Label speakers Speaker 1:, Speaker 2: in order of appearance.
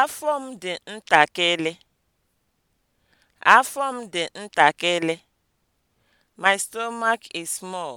Speaker 1: Afọ m dị ntakịrị. Afọ m dị ntakịrị. My stomach is small.